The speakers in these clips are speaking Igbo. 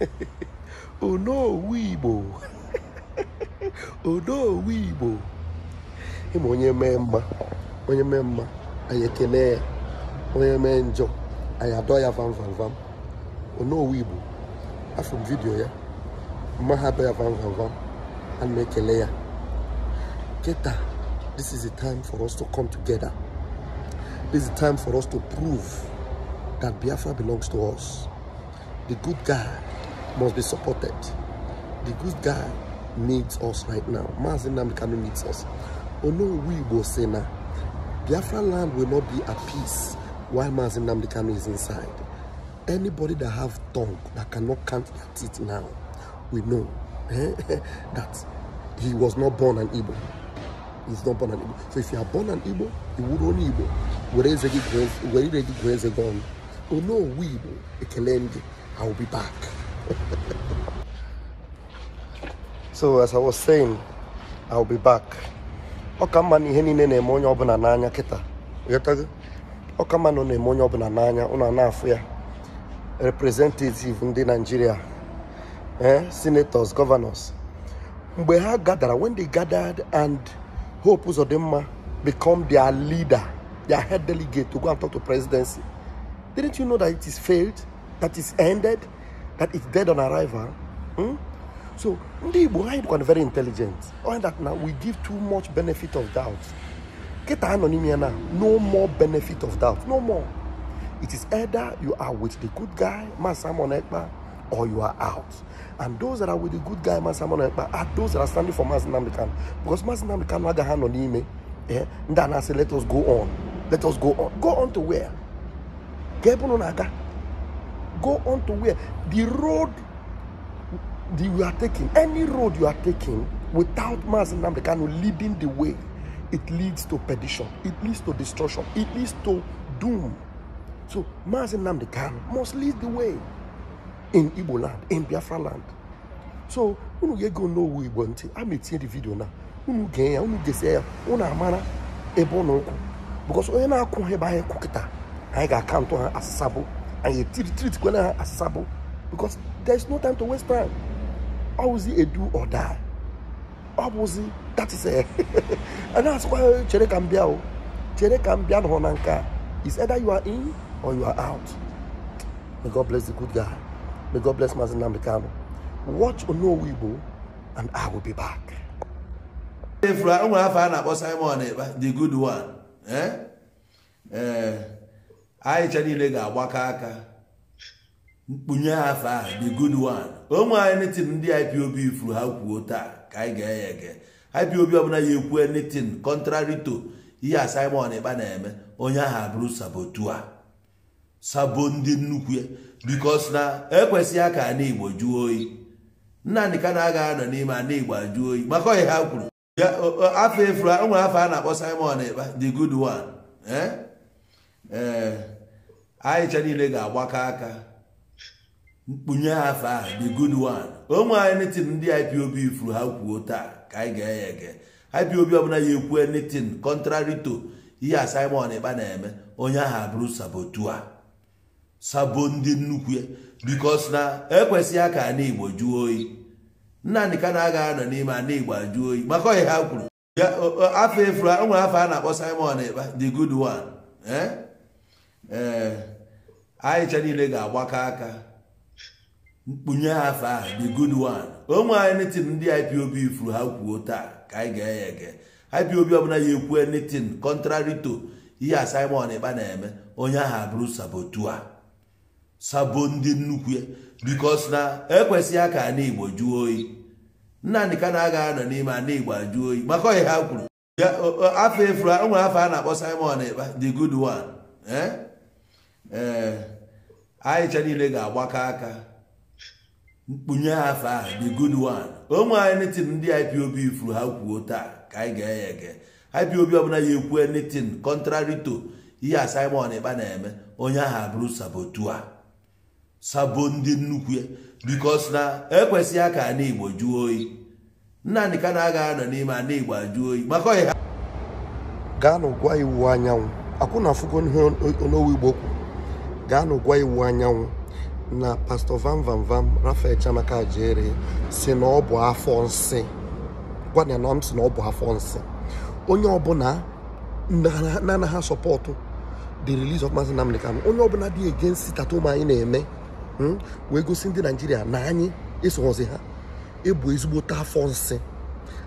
onowu igbo onowu igbo ịma onye mee mma onye mee mma anyị ekele ya onye mee njọ anyị adọ ya vam vam vam onowu igbo afọ m vidiyo ya mma ha adọ ya vam vam vam ekele ya kịta this is the time for us to come together this is the time for us to prove that biafra belongs to us the good guy must be supported. The good guy needs us right now. Mazin needs us. Oh no, we Ono say now. Biafra land will not be at peace while Mazin is inside. Anybody that have tongue that cannot count their teeth now, we know eh, that he was not born an Igbo. He's not born an Igbo. So if you are born an Igbo, you would only Igbo. Where is the Igbo? Where is the Igbo? Ono Wibo Ekelende. I will be back. so as I was saying, I will be back. Ọ ka mma na ihe niile na-eme onye ọbụla n'anya kịta ghọtago ọ ka mma na ọ na-eme onye Nigeria eh, senators governors mgbe ha gathered, when they gathered and Hope them become their leader their head delegate to go and talk to presidency didn't you know that it is failed that is ended, that is dead on arrival. Hmm? So ndị Igbo anyị very intelligent. All that now we give too much benefit of doubt. Get anonymia now. No more benefit of doubt. No more. It is either you are with the good guy, Man Simon or you are out. And those that are with the good guy, Man Simon are those that are standing for Mazin Namdekan. Because Mazin Namdekan had a hand on him. Eh? And then I say, let us go on. Let us go on. Go on to where? Get on go on to where the road the, you are taking, any road you are taking without Mazi Namdekano leading the way, it leads to perdition, it leads to destruction, it leads to doom. So Mazi Namdekano must lead the way in Igbo land, in Biafra land. So, when ye go know we want to. I'm the video now. Unu get ya, unu get ya, unu amana ebo no Because onye na-akwụ ha ebe anyị kwụ kịta, anyị ga-akaụntụ ha asasabụ and you treat treat tikwa na sabo, because there is no time to waste time ɔwuzi edu ɔda ɔwuzi that is ɛ eh, And that's why kan bia o oh, kyerɛ kan bia no hɔ nanka is either you are in or you are out may god bless the good guy may god bless mazin namdekano watch ono onowibo and i will be back. If o nwere afọ a na simon eh, the good one. Eh? Eh. anyịcha niile ga-agbakọ aka mkpunye afọ a the good one onwe anyị netin ndị IPOB furu ha kwuo taa ka anyị ga-eye ege IPOB ọbụla ya ekwu netin contrary to ihe a Simon ịba na-eme onye ahụ abụrụ sabotua sabo ndị nnukwu ya bikos na ekwesịghị ka ana Igbo jụọ oyi nna ka na-aga anọ n'ime ana Igbo ajụ oyi maka ọhịa ha kwuru afọ efuru nwere afọ a na-akpọ Simon Ekpa the good one eh? ee eh, anyị cha niile ga-agbakọ aka mkpunye afọ a the good one onwe anyị netin ndị IPOB furu ha kwuo taa ka anyị ga-eye ege IPOB ọbụla ya ekwu netin contrary to ihe a Simon Ekpa na-eme onye ahụ abụrụ sabotua sabo ndị nnukwu ya because na ekwesịghị aka ana Igbo jụọ oyi Nna ka na-aga anọ n'ime ana Igbo ajụ oyi maka oyi ha kwuru afọ efuru nwere afọ a na-akpọ Simon Ekpa the good one eh? ee eh, anyị anyịcha niile ga-agbakọ aka mkpunye afọ a the good one anyị anything ndị IPOB furu ha kwuo taa ka anyị ga-enye ege IPOB ọbụla ya ekwu anything contrary to ihe a Simon ịba na-eme onye ahụ abụrụ sabotua sabo ndị nnukwu ya because na ekwesịghị aka ana Igbo jụọ oyi Nnamdị ka na-aga anọ n'ime ana Igbo ajụ oyi maka oyi ha kwuru afọ efuru nwere afọ a na-akpọ Simon Ekpa the good one eh? ee anyịcha niile ga-agbakọ aka mkpunye afọ a the good one onwe anyị netin ndị IPOB ifuru ha kwuo taa ka anyị ga-eye ege IPOB ọbụla ya ekwue netin contrary to ihe a Simon Ekpa na-eme onye ahụ abụrụ sabotua sabo ndị nnukwu ya bikos na ekwesịghị ka ana Igbo jụọ oyi Nnamdị ka na-aga anọ n'ime ana Igbo ajụọ oyi maka ọhịa gaa n'ụgwa iwu anyanwụ akwụ na afụgo ihe n'owu Igbo kwu gaanụ gwa iwu anyanwụ na pastọ Van Van Van rafael Chiamaka jere si na ọ bụ afọ nsị gwana na m si na ọ bụ afọ nsị onye ọbụla na-anaghị asọpọtụ the release of Maazị Nnamdi Kanu onye ọbụla dị against ụmụ anyị na-eme hmm, wee gosi ndị naijiria na anyị esoghozi ha ebu ezigbote afọ nsị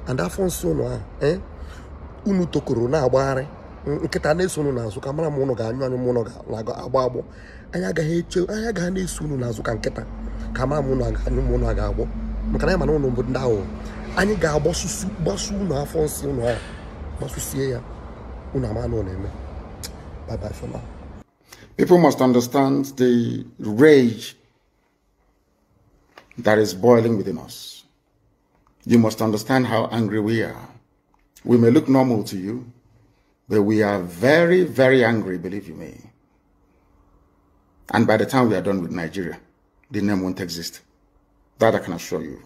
and afọ nsị ụnụ a eh, unu tokoro na-agbagharị nkịta na-eso unu n'azụ ka mara m ụnụ ga-anyụ anyụ ga agbọ anyị agaghị eche anyị agaghị na-eso unu n'azụ ka nkịta ka mara m ụnụ ga-anyụ m ụnụ ga-agbọ maka na mana ụnụ bụ ndị ahụ anyị ga-agbasusu gbasu afọ nsị ụlọ ahụ gbasusie ya unu ama na eme bye bye must understand That we are very, very angry, believe you me. And by the time we are done with Nigeria, the name won't exist. That I can assure you.